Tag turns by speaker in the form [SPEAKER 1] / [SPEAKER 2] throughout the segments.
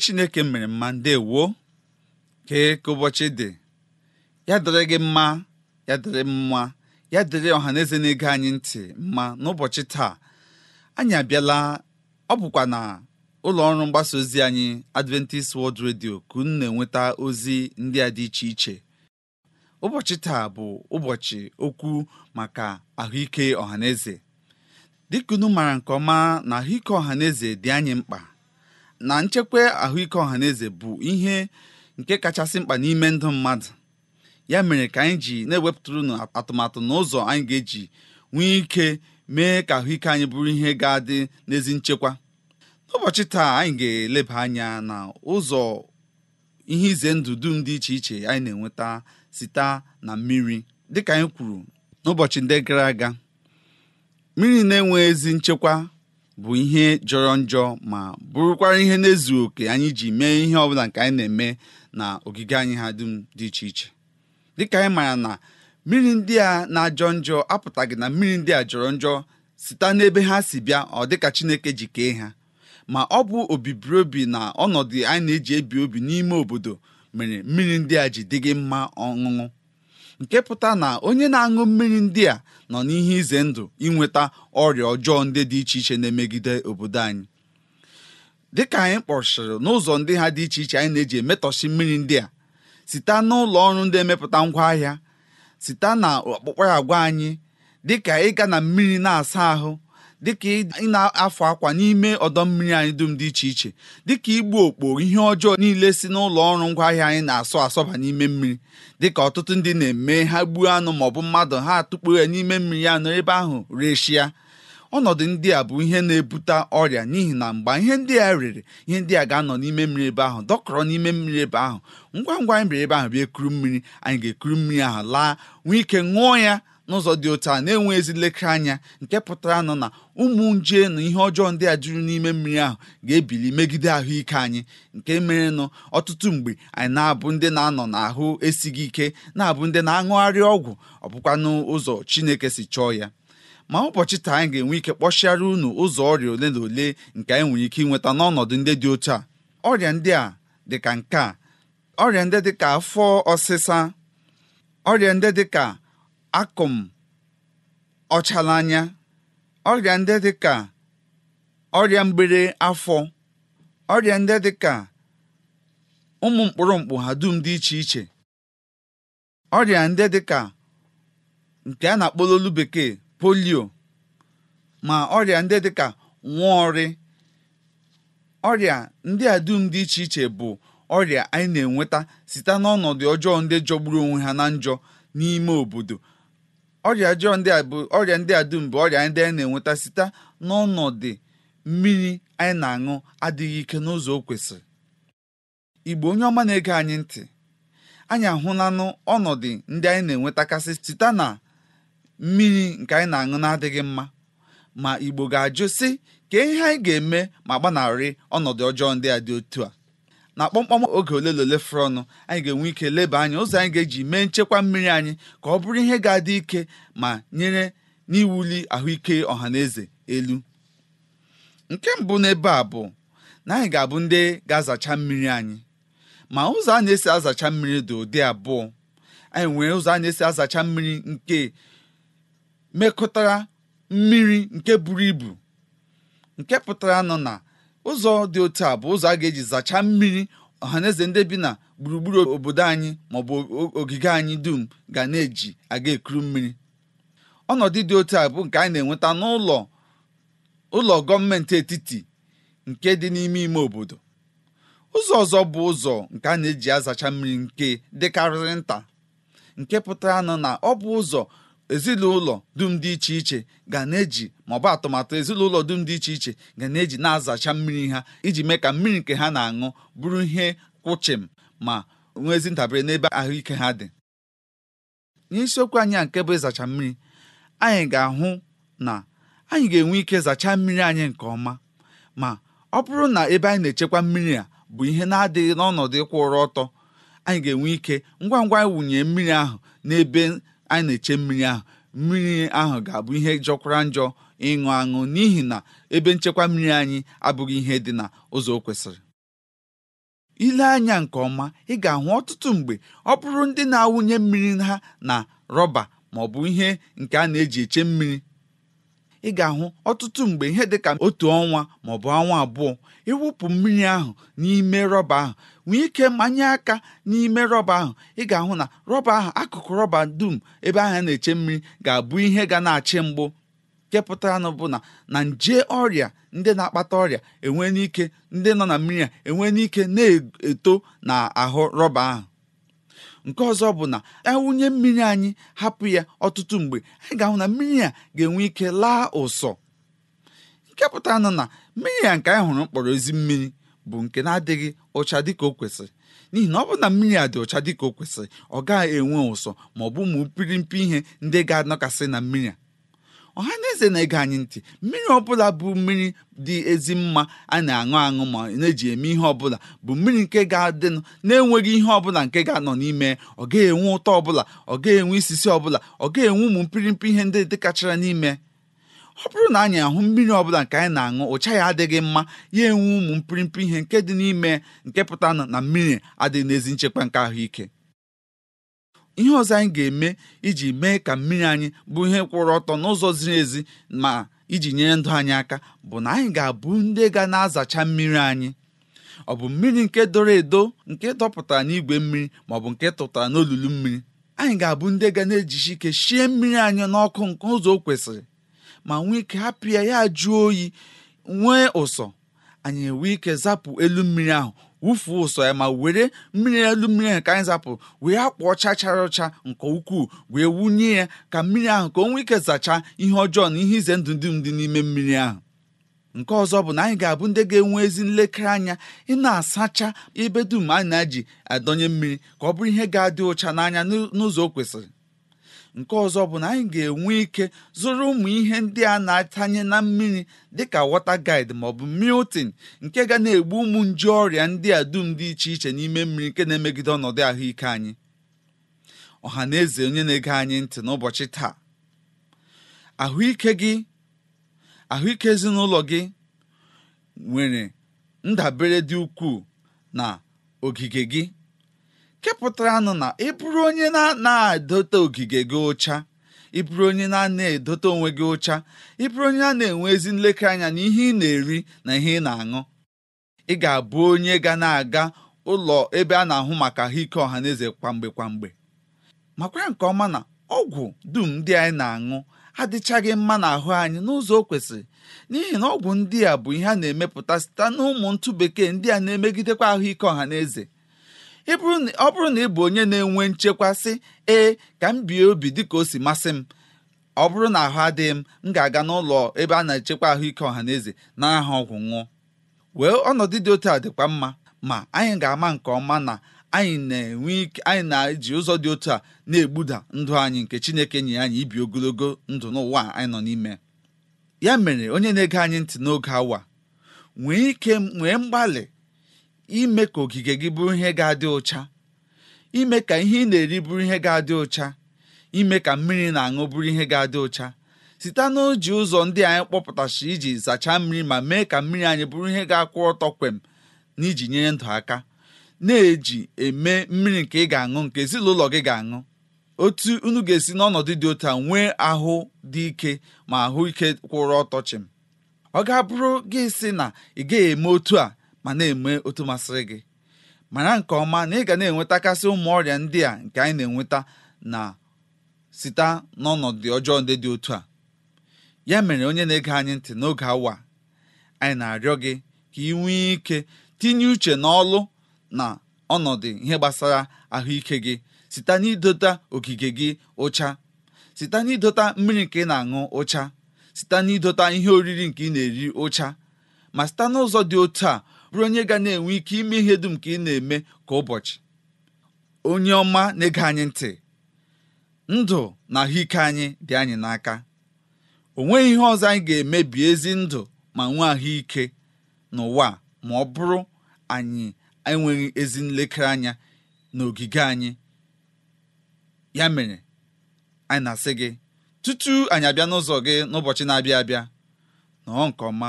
[SPEAKER 1] chineke mere mma ndewo kee ka ụbọchị dị ya dịrị gị mma ya dịrị mma ya dịrị ọha na ege anyị ntị mma n'ụbọchị taa anyị abịala ọ bụkwa na ụlọ ọrụ mgbasa ozi anyị Adventist World Radio ka unu na-enweta ozi ndị a dị iche iche ụbọchị taa bụ ụbọchị okwu maka ahụike ọhaneze dịka maara nke ọma na ahụike ọha dị anyị mkpa na nchekwa ahụike ọha ọhaneze bụ ihe nke kachasị mkpa n'ime ndụ mmadụ ya mere ka anyị ji na-ewepụtara unu atụmatụ na ụzọ anyị ga-eji nwee ike mee ka ahụike anyị bụrụ ihe ga-adị n'ezi nchekwa n'ụbọchị taa anyị ga-eleba anya na ụzọ ihe ize ndụ dum dị iche iche anyị na-enweta site na mmiri dịka anyị kwuru n'ụbọchị ndị gara aga mmiri na-enwe ezi nchekwa bụ ihe jọrọ njọ ma bụrụkwara ihe na-ezu oke anyị ji mee ihe ọbụla nke anyị na-eme na ogige anyị ha dum dị iche iche dịka anyị maara na mmiri ndị a na-ajọ njọ apụtaghị na mmiri ndị a jọrọ njọ site n'ebe ha si bịa ọ dịka Chineke ji kee ha ma ọ bụ obibiri na ọnọdụ anyị na-eji ebi obi n'ime obodo mere mmiri ndị a ji dịghị mma ọṅụṅụ nke pụta na onye na-aṅụ mmiri ndị a nọ n'ihe ize ndụ inweta ọrịa ọjọọ ndị dị iche iche na-emegide obodo anyị Dị ka anyị kpọchiri n'ụzọ ndị ha dị iche iche anyị na-eji emetọsi mmiri ndị a site n'ụlọ ọrụ ndị emepụta ngwaahịa site na ọkpụkpa agwa anyị dịka ịga na mmiri na-asa ahụ dịka ị na-afụ akwa n'ime ọdọ mmiri anyị dum dị iche iche dịka igbu okpo ihe ọjọọ niile si n'ụlọ ọrụ ngwaahịa anyị na-asọ asọba n'ime mmiri dịka ọtụtụ ndị na-eme ha gbuo anụ maọbụ mmadụ ha atụkpo ya n'ime mmiri anụ ebe ahụ reshia ọnọdụ ndị a bụ ihe na-ebute ọrịa n'ihi na mgbe ihe ndị a rere ihe ndị a ga-anọ n'ime mmiri ebe ahụ dọkọrọ n'ime mmiri ebe ahụ ngwa ngwa anyị mere ebe ahụ bịa ekuru mmiri anyị ga-ekuru mmiri ahụ laa nwee ike ṅụọ ya n'ụzọ dị otu a na-enwe ezi nlekere anya nke pụtara nọ na ụmụ nje na ihe ọjọọ ndị a juru n'ime mmiri ahụ ga-ebili megide ahụike anyị nke mere nụ ọtụtụ mgbe anyị na-abụ ndị na-anọ n'ahụ esighị ike na-abụ ndị na-aṅụgharị ọgwụ ọ bụkwanụ ụzọ Chineke si chọọ ya ma ụbọchị taa anyị ga-enwe ike kpọchiara unu ụzọ ọrịa ole na ole nke anyị nwere ike ịnweta n'ọnọdụ ndị dị otu a ọrịa ndị a dịka nke a ọrịa ndị afọ ọsịsa ọrịa ndị akụm anya ọrịa ndị dị ka ọrịa mgbere afọ ọrịa ndị dị ka ụmụ mkpụrụ mkpụ ha dum dị iche iche ọrịa ndị dị ka nke a na akpọlolu bekee polio ma ọrịa ndị dị ka ọrị ọrịa ndị a dum dị iche iche bụ ọrịa anyị na-enweta site n'ọnọdụ ọjọọ ndị jọgburu onwe ha na njọ n'ime obodo ọrịa ndị a bụ ọrịa ndị a dum bụ ọrịa ndị anyị na-enweta site n'ọnọdụ mmiri anyị na-aṅụ adịghị ike n'ụzọ o kwesịrị igbo onye ọma na-ege anyị ntị anyị ahụlanụ ọnọdụ ndị anyị na-enwetakasị site na mmiri nke anyị na-aṅụ na-adịghị mma ma igbo ga-ajụ sị ka ihe anyị ga-eme ma gbanarị ọnọdụ ọjọọ ndị a dị otu a na kpọmkpọm oge ole na ole ọnụ anyị ga-enwe ike leba anya ụzọ anyị ga-eji mee nchekwa mmiri anyị ka ọ bụrụ ihe ga-adị ike ma nyere n'iwuli ahụike ọha na eze elu nke mbụ n'ebe a bụ na anyị ga-abụ ndị ga-azacha mmiri anyị ma ụzọ a na-esi azacha mmiri dị ụdị abụọ anyị nwere ụzọ a na-esi azacha mmiri nke mekọtara mmiri nke buru ibu nke pụtara nọ na ụzọ dị otu a bụ ụzọ a ga-eji zachaa mmiri ọhaneze ndị bi na gburugburu obodo anyị maọbụ ogige anyị dum ga na-eji aga ekuru mmiri ọnọdụ dị otu a bụ nke anyị na-enweta n'ụlọ ụlọ gọọmenti etiti nke dị n'ime ime obodo ụzọ ọzọ bụ ụzọ nke a na-eji azacha mmiri nke dịkarịrị nta nke pụtara nọ na ọ bụ ụzọ ezinụlọ dum dị iche iche ga na-eji maọbụ atụmatụ ezinụlọ dum dị iche iche ga na-eji na-azacha mmiri ha iji mee ka mmiri nke ha na-aṅụ bụrụ ihe kwụchim ma nwee ezi ntabere n'ebe ahụike ha dị n'isiokwu anyị a nke bụ ịzacha mmiri anyị ga-ahụ na anyị ga-enwe ike zachaa mmiri anyị nke ọma ma ọ bụrụ na ebe anyị na-echekwa mmiri a bụ ihe na-adịghị n'ọnọdụ ịkwụ ụrọ ọtọ anyị ga-enwe ike ngwa ngwa wụnye mmiri ahụ n'ebe anyị na-eche mmiri ahụ mmiri ahụ ga-abụ ihe jọkwara njọ ịṅụ aṅụ n'ihi na ebe nchekwa mmiri anyị abụghị ihe dị na ụzọ o kwesịrị ile anya nke ọma ị ga-ahụ ọtụtụ mgbe ọ bụrụ ndị na-awụnye mmiri ha na rọba ma ọ bụ ihe nke a na-eji eche mmiri ị ga-ahụ ọtụtụ mgbe ihe dị ka otu ọnwa ma maọbụ ọnwa abụọ ịwụpụ mmiri ahụ n'ime rọba ahụ nwee ike manye aka n'ime rọba ahụ ị ga-ahụ na rọba ahụ akụkụ rọba dum ebe ahụ na-eche mmiri ga-abụ ihe ga na-achị mgbụ kepụtara nụ bụ na na nje ọrịa ndị na-akpata ọrịa enwe n'ike ndị nọ na mmiri a enwe n'ike na-eto na ahụ rọba ahụ nke ọzọ bụ na ewunye mmiri anyị hapụ ya ọtụtụ mgbe anyị ga-ahụ na mmiri a ga-enwe ike laa ụsọ nke pụta nọ na mmiri a nke anyị hụrụ mkpọrọ ezi mmiri bụ nke na-adịghị ụcha dịka o kwesịrị n'ihi na ọ bụ na mmiri a dị ụcha dịka o kwesịrị ọ gaghị enwe ụsọ ma ọ bụ ụmụ pịrịmpị ihe ndị ga-anọkasị na mmiri a ọha na eze na-ege anyị ntị mmiri ọbụla bụ mmiri dị ezi mma a na-aṅụ aṅụ ma na-eji eme ihe ọbụla bụ mmiri nke ga-adịnụ na-enweghị ihe ọbụla nke ga-anọ n'ime ọ ga-enwe ụtọ ọbụla ọ ga-enwe isisi ọbụla ọ ga-enwe ụmụ mpịrịmpị ihe ndị dịkachara n'ime ọ bụrụ na anyị ahụ mmiri ọbụla nke anyị na-aṅụ ụcha ya adịghị mma ya enwe ụmụ mpịrịmpị ihe nke dị n'ime nke pụta na mmiri adịghị n'ezi nchekwa nke ahụike ihe ọzọ anyị ga-eme iji mee ka mmiri anyị bụ ihe kwụrụ ọtọ n'ụzọ ziri ezi ma iji nyere ndụ anyị aka bụ na anyị ga-abụ ndị ga na-azacha mmiri anyị ọ bụ mmiri nke doro edo nke dọpụtara n'igwe mmiri ma ọ bụ nke tụtara n'olulu mmiri anyị ga-abụ ndị ga na-ejisi ike shie mmiri anyị n'ọkụ nke ụzọ o kwesịrị ma nwee ike hapụ ya ya jụọ oyi nwee ụsọ anyị enwee ike zapụ elu mmiri ahụ wụfuo ụsọ ya ma were mmiri elu mmiri ahụ ka anyị zapụ wee akpụ ọcha chara ọcha nke ukwuu wee wunye ya ka mmiri ahụ ka o nwee ike zachaa ihe ọjọọ na ihe ize ndụ ndị dị n'ime mmiri ahụ nke ọzọ bụ na anyị ga-abụ ndị ga-enwe ezi nlekere anya ị na-asacha ebe dum anyị na-eji adọnye mmiri ka ọ bụrụ ihe ga-adị ụcha n'anya n'ụzọ o kwesịrị nke ọzọ bụ na anyị ga-enwe ike zụrụ ụmụ ihe ndị a na-atanye na mmiri dịka wọta guide maọbụ miltin nke ga na-egbu ụmụ nje ọrịa ndị a dum dị iche iche n'ime mmiri nke na-emegide ọnọdụ ahụike anyị ọha na eze onye na-ege anyị ntị n'ụbọchị taa ahụike ahụike ezinụlọ gị nwere ndabere dị ukwuu na ogige gị nụ na ị bụrụ onye na-edote ogige gị ụcha ị bụrụ onye na-edote onwe gị ụcha ị bụrụ onye a na-enwe ezi nlekere anya na ihe ị na-eri na ihe ị na-aṅụ ị ga-abụ onye ga na-aga ụlọ ebe a na-ahụ maka ahụike ọha na eze kwamgbe kwamgbe makwa nke ọma na ọgwụ dum ndị anyị na-aṅụ adịchaghị mma n'ahụ anyị n'ụzọ o kwesịrị n'ihi na ọgwụ ndị a bụ ihe a na-emepụta site n'ụmụ ntụ bekee ndị a na-emegidekwa ahụike ọha na eze ọ bụrụ na ị bụ onye na-enwe nchekwa sị ee ka m bie obi dịka o si masị m ọ bụrụ na ahụ adịghị m m ga-aga n'ụlọ ebe a na-echekwa ahụike ọha na eze na aha ọgwụ nwụọ wee ọnọdụ dị otu a dịkwa mma ma anyị ga-ama nke ọma na anyị na-enwe ike anyị na-eji ụzọ dị otu a na-egbuda ndụ anyị nke Chineke nye anyị ibi ogologo ndụ n'ụwa anyị nọ n'ime ya mere onye na-ege anyị ntị n'oge awa nwee ike nwee mgbalị ime ka ogige gị bụrụ ihe ga-adị ụcha ime ka ihe ị na-eri bụrụ ihe ga-adị ụcha ime ka mmiri na-aṅụ bụrụ ihe ga-adị ụcha site n'oji ụzọ ndị anyị kpọpụtachi iji zachaa mmiri ma mee ka mmiri anyị bụrụ ihe ga-akwụ ọtọ kwem na iji nyere ndụ aka na-eji eme mmiri nke ị ga-aṅụ nke ezinụlọ gị ga-aṅụ otu unu ga-esi n'ọnọdụ dị otu a nwee ahụ dị ike ma ahụ ike kwụrụ ọtọ chịm ọ ga-abụrụ gị sị na ị gaghị eme otu a ma na-eme otu masịrị gị mara nke ọma na ị ga na-enwetakasị ụmụ ọrịa ndị a nke anyị na-enweta na site n'ọnọdụ ọjọọ ndị dị otu a ya mere onye na-ege anyị ntị n'oge awa anyị na-arịọ gị ka ị nwee ike tinye uche n'ọlụ na ọnọdụ ihe gbasara ahụike gị site n'idota ogige gị ụcha site n'idota mmiri nke ị na-aṅụ ụcha site n'idota ihe oriri nke ị na-eri ụcha ma site n'ụzọ dị otu a bụrụ onye ga na-enwe ike ime ihe dum ka ị na-eme ka ụbọchị onye ọma na-ege anyị ntị ndụ na ahụike anyị dị anyị n'aka o nweghị ihe ọzọ anyị ga-emebi ezi ndụ ma nwee ahụike n'ụwa ma ọ bụrụ anyị enweghị ezi nlekere anya n'ogige anyị ya mere anyị na-asị gị tutu anyị abịa n'ụzọ gị n'ụbọchị na-abịa abịa nọọ nke ọma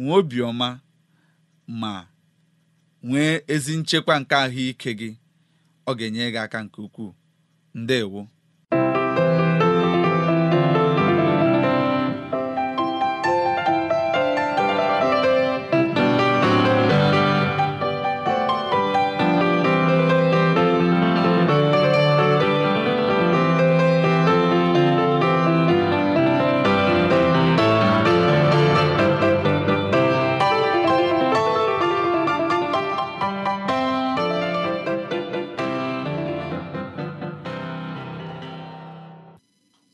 [SPEAKER 1] nwee obiọma. ma nwee ezi nchekwa nke ahụike gị ọ ga-enye gị aka nke ukwuu ndewo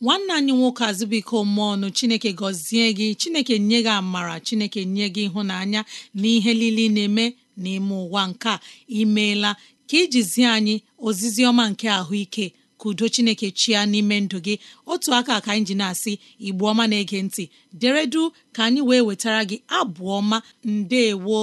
[SPEAKER 2] nwanne anyị nwoke mmụọ ọnụ chineke gọzie gị chineke nye gị amara chineke nye gị ịhụnanya na ihe niile na-eme n'ime ụwa nke a imeela ka ijizie anyị ozizi ọma nke ahụike ka udo chineke chia n'ime ndụ gị otu aka ka anyị ji na-asị igbu ọma na-ege ntị deredu ka anyị wee wetara gị abụ ọma ndewo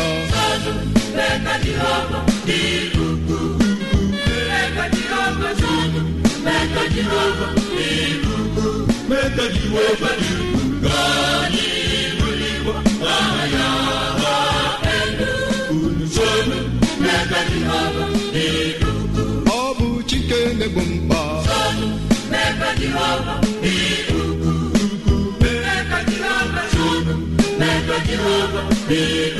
[SPEAKER 3] ọ bụ chike na-egbo mkpa ukwu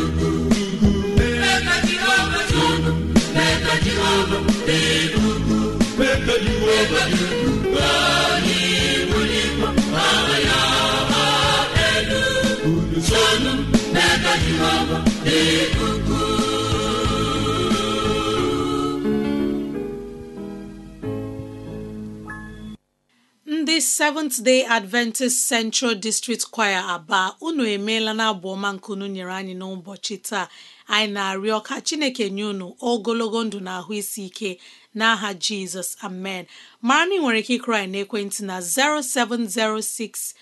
[SPEAKER 2] ndị seventh day adventist central district choir aba unu emeela na abụ ọma nyere anyị n'ụbọchị taa anyị na-arịọ ka chineke nye unu ogologo ndụ na ahụ isi ike n'aha jizọs amen mara na ị nwere ike n'ekwentị na 0706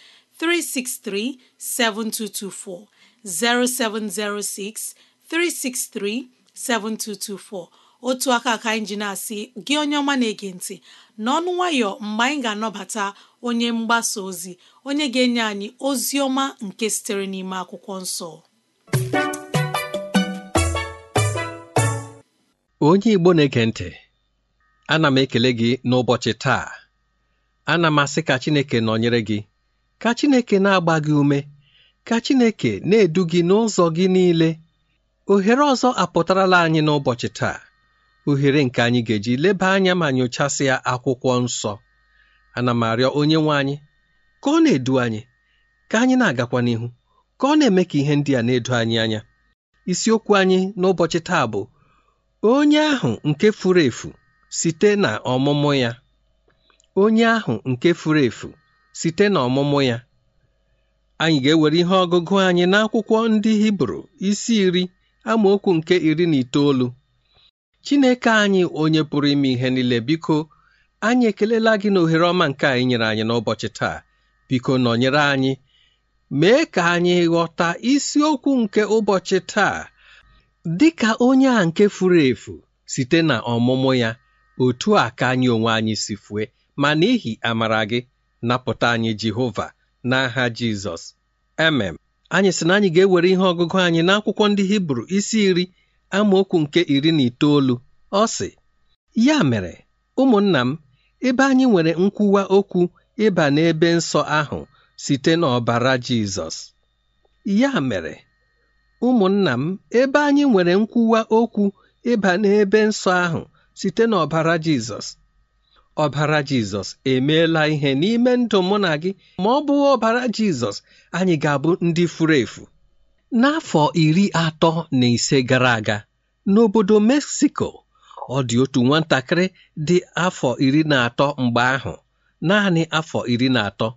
[SPEAKER 2] 363 7224 0706 363-7224 otu aka ka anyị ji na-asị gị onye ọma na-ege ntị n'ọnụ nwayọ mgbe anyị ga-anọbata onye mgbasa ozi onye ga-enye anyị ozi ọma nke sitere n'ime akwụkwọ nsọ
[SPEAKER 4] onye Igbo na-ege ntị ana m ekele gị n'ụbọchị taa ana m asị ka Chineke nọnyere gị ka Chineke na-agba gị ume ka Chineke na-edu gị n'ụzọ gị niile ohere ọzọ apụtarala anyị n'ụbọchị taa ohere nke anyị ga-eji leba anya ma nyochasịa akwụkwọ nsọ ana m arịọ onye nwe anyị ka ọ na-edu anyị ka anyị na-agakwa n'ihu ka ọ na-eme ka ihe ndị a na-edo anyị anya isiokwu anyị n'ụbọchị taa bụ onye ahụ nke furu efu site na ọmụmụ ya onye ahụ nke furu efu site na ọmụmụ ya anyị ga-ewere ihe ọgụgụ anyị n'akwụkwọ ndị Hibru isi iri amaokwu nke iri na itoolu Chineke anyị onye pụrụ ime ihe niile biko anyị ekelela gị na ohere ọma nke anyị nyere anyị n'ụbọchị taa biko nọnyere anyị mee ka anyị ghọta isiokwu nke ụbọchị taa dị ka onye a nke furu efu site na ọmụmụ ya otu a ka anyị onwe anyị si fue ma n'ihi amara gị napụta anyị Jehova n'aha Jizọs emem anyị sị na anyị ga-ewere ihe ọgụgụ anyị n'akwụkwọ ndị hibru isi iri amaokwu nke iri na itoolu ọ sị ya mere ụmụnna m ebe anyị nwere nkwuwa okwu ịba n'ebe nsọ ahụ site n'ọbara Jizọs ya mere ụmụnna m ebe anyị nwere nkwuwa okwu ịba n'ebe nsọ ahụ site n'ọbara Jizọs ọbara jizọs emeela ihe n'ime ndụ mụ na gị ma ọ bụghị ọbara jizọs anyị ga-abụ ndị furu efu n'afọ iri atọ na ise gara aga n'obodo Mexico, ọ dị otu nwatakịrị dị afọ iri na atọ mgbe ahụ naanị afọ iri na atọ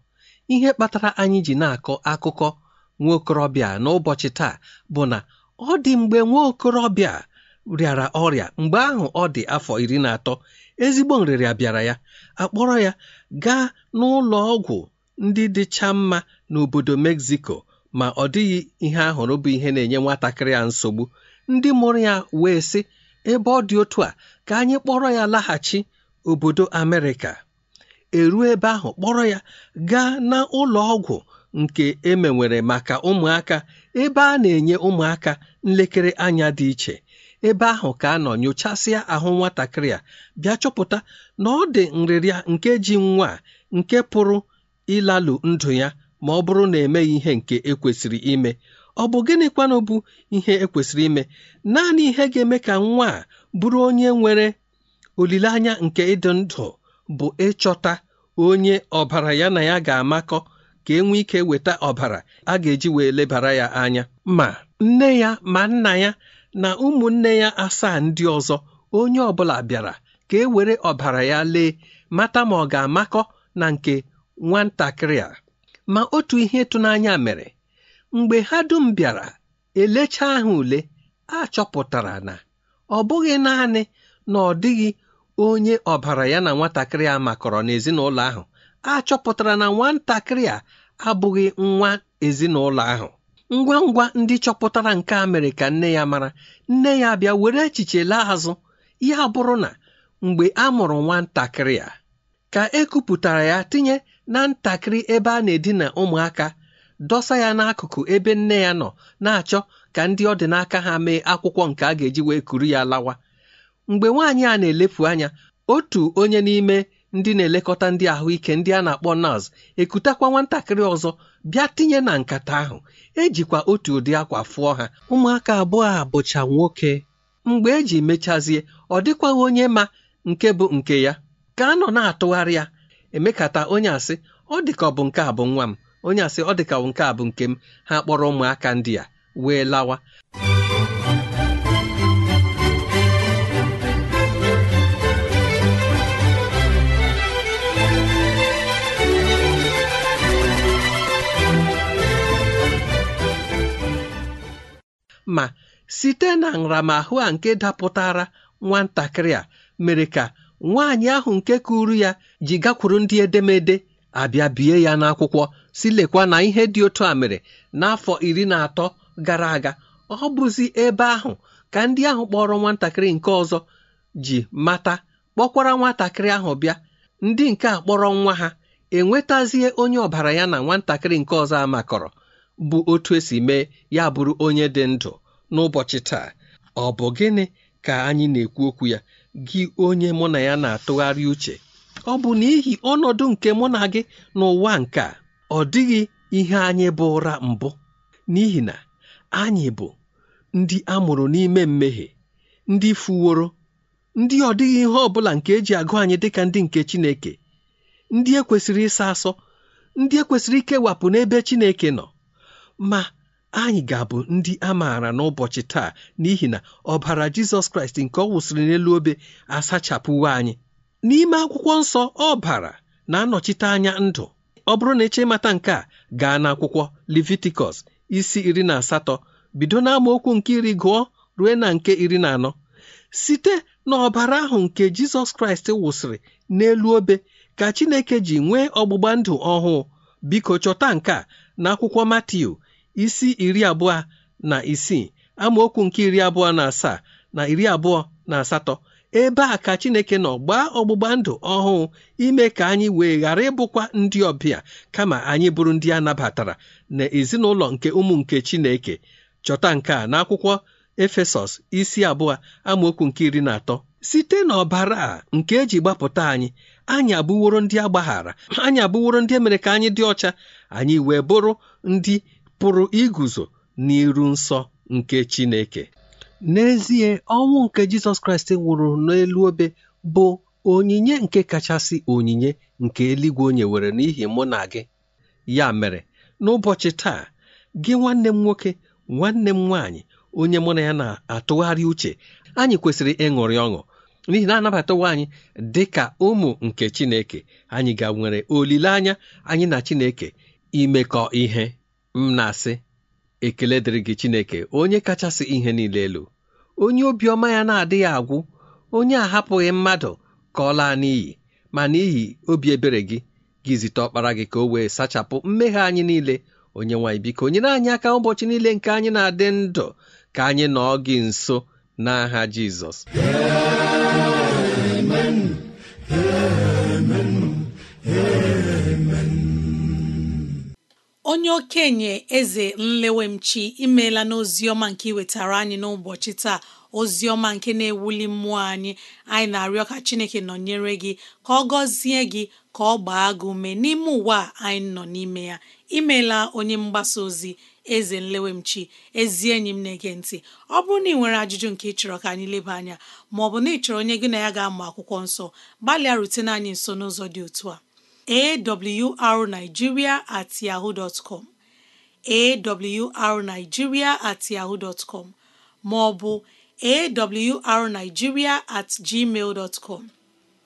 [SPEAKER 4] ihe kpatara anyị ji na-akọ akụkọ nwa okorobịa n'ụbọchị taa bụ na ọ dị mgbe nwa okorobịa rịara ọrịa mgbe ahụ ọ dị afọ iri na atọ ezigbo nrịrịa bịara ya akpọrọ ya gaa n'ụlọ ọgwụ ndị dịcha mma n'obodo Mexico ma ọ dịghị ihe ahụrụ bụ ihe na-enye nwatakịrị a nsogbu ndị mụrụ ya wee sị ebe ọ dị otu a ka anyị kpọrọ ya laghachi obodo Amerịka eruo ebe ahụ kpọrọ ya gaa na ụlọ ọgwụ nke emewere maka ụmụaka ebe a na-enye ụmụaka nlekere anya dị iche ebe ahụ ka a nọ nyochasịa ahụ nwatakịrị a bịa chọpụta na ọ dị nrịrịa nke ji nwa nke pụrụ ịlalụ ndụ ya ma ọ bụrụ na emeghị ihe nke ekwesịrị ime ọ bụ gịnịkwanụ bụ ihe ekwesịrị ime naanị ihe ga-eme ka nwa bụrụ onye nwere olileanya nke ịdị ndụ bụ ịchọta onye ọbara ya na ya ga-amakọ ka enwe ike weta ọbara a ga-eji wee lebara ya anya ma nne ya ma nna ya na ụmụnne ya asaa ndị ọzọ onye ọbụla bịara ka e were ọbara ya lee mata ma ọ ga-amakọ na nke nwatakịrị a ma otu ihe ịtụnanya mere mgbe ha dum bịara elecha ahụ ule a chọpụtara na ọ bụghị naanị na ọ dịghị onye ọbara ya na nwatakịrị a makọrọ n'ezinụlọ ahụ a chọpụtara na nwatakịrị a abụghị nwa ezinụlọ ahụ ngwa ngwa ndị chọpụtara nke a mere ka nne ya mara nne ya bịa were echiche laa azụ ya bụrụ na mgbe a mụrụ nwatakịrị a ka e ya tinye na ntakịrị ebe a na-edina ụmụaka dọsa ya n'akụkụ ebe nne ya nọ na-achọ ka ndị ọ dị n'aka ha mee akwụkwọ nke a ga-eji wee kuru ya lawa mgbe nwaanyị a na-elepụ anya otu onye n'ime ndị na-elekọta ndị ahụike ndị a na-akpọ nọọsụ ekutakwa nwatakịrị ọzọ bịa tinye na nkata ahụ ejikwa otu ụdị akwa fụọ ha ụmụaka abụọ a bụcha nwoke mgbe eji mechazie ọ dịkwaghị onye ma nke bụ nke ya ka a nọ na-atụgharị ya emekata onye asị ọ dịka ọ bụ nke a bụ nwa m onye asị ọ dịka nke a bụ nke m ha kpọrọ ụmụaka ndị a wee lawa ma site na nramahụ a nke dapụtara nwatakịrị a mere ka nwaanyị ahụ nke kụrụ ya ji gakwuru ndị edemede abịa bie ya n'akwụkwọ si lekwa na ihe dị otu a mere n'afọ iri na atọ gara aga ọ bụzi ebe ahụ ka ndị ahụ kpọrọ nwatakịrị nke ọzọ ji mata kpọkwara nwatakịrị ahụ bịa ndị nke a kpọrọ nwa ha enwetazie onye ọbara ya na nwatakịrị nke ọzọ amakọrọ bụ otu esi mee ya bụrụ onye dị ndụ n'ụbọchị taa ọ bụ gịnị ka anyị na-ekwu okwu ya gị onye mụ na ya na-atụgharị uche ọ bụ n'ihi ọnọdụ nke mụ na gị n'ụwa nke a ọ dịghị ihe anyị bụ ụra mbụ n'ihi na anyị bụ ndị a mụrụ n'ime mmehie ndị fuworo ndị ọ dịghị ihe ọ bụla nke eji agụ anyị dịka ndị nke Chineke ndị ekwesịrị ịsa asọ ndị ekwesịrị ikewapụ n'ebe Chineke nọ ma anyị ga-abụ ndị a maara n'ụbọchị taa n'ihi na ọbara jizọs kraịst nke ọ wụsịrị n'elu obe asachapụwo anyị n'ime akwụkwọ nsọ ọbara na-anọchite anya ndụ ọ bụrụ na eche mata nke a gaa n'akwụkwọ levitikọs isi iri na asatọ bido n'amaokwu nke iri gụọ ruo na nke iri na anọ site n'ọbara ahụ nke jizọs kraịst wụsịrị n'elu obe ka chineke ji nwee ọgbụgba ndụ ọhụụ biko chọta nke a n'akwụkwọ matiu isi iri abụọ na isii amaokwu nke iri abụọ na asaa na iri abụọ na asatọ ebe a ka Chineke nọ gbaa ọgbụgba ndụ ọhụụ ime ka anyị wee ghara ịbụkwa ndị ọbịa kama anyị bụrụ ndị a nabatara na ezinụlọ nke ụmụ nke Chineke chọta nke a n'akwụkwọ Efesọs isi abụọ amaokwu nke iri na atọ site n'ọbara a nke eji gbapụta anyị anyị abụworo ndị agbaghara anyị abụworo ndị e mere ka anyị dị ọcha anyị wee bụrụ ndị pụrụ iguzo n'iru nsọ nke Chineke n'ezie ọnwụ nke Jizọs Kraịst nwụrụ n'elu obe bụ onyinye nke kachasị onyinye nke eluigwe onye were n'ihi mụ na gị ya mere n'ụbọchị taa gị nwanne m nwoke nwanne m nwaanyị onye mụ na ya na-atụgharị uche anyị kwesịrị ịṅụrị ọṅụ n'ihi na anabatawa anyị dị ka ụmụ nke Chineke anyị ga nwere olileanya anyị na Chineke imekọ ihe m na-asị ekele dịrị gị Chineke onye kachasị ihe niile elu onye obiọma ya na-adịghị agwụ onye ahapụghị mmadụ ka ọ laa n'iyi ma n'ihi obi ebere gị gị zite ọkpara gị ka o wee sachapụ mmehie anyị niile onye nwanyị biko nyere anyị aka ụbọchị niile nke anyị na-adị ndụ ka anyị nọọ gị nso n'aha Jizọs
[SPEAKER 2] onye okenye eze nlewemchi imeela n'ozi ọma nke iwetara anyị n'ụbọchị taa ozi ọma nke na-ewuli mmụọ anyị anyị na-arịọ ka Chineke nọnyere gị ka ọ gọzie gị ka ọ gbaa gị ume n'ime ụwa anyị nọ n'ime ya imeela onye mgbasa ozi eze nlewemchi ezi enyi m na-ege ntị ọ bụrụ na ị nwere ajụjụ nke ị chọrọ ka anyị leba anya ma na ị chọrọ onye gị na ya ga-amụ akwụkwọ nsọ gbalịa rutene anyị nso n'ụzọ dị otu a awrnigeria at yahoo dot com awrnigeria at yahoo dot com ma ọ bụ awrnigeria at gmail com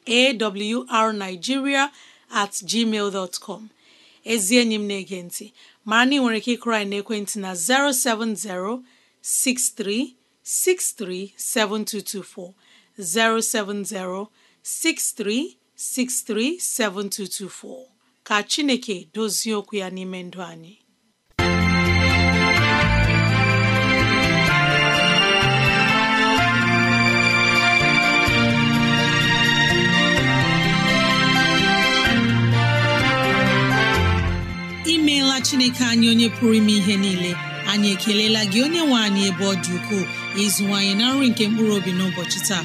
[SPEAKER 2] awrnigeria at gmail com ezi enyi m na-ege ntị mara na ị nwere ike ịkụrụ anyị n'ekwentị na 070 6363 7224 070 7224 637224 ka Chineke dozie okwu ya n'ime ndụ anyị imeela Chineke anyị onye pụrụ ime ihe niile anyị ekelela gị onye nwe anyị ebe ọ dị ukwuu ịzụwanyị na nri nke mkpụrụ obi n'ụbọchị taa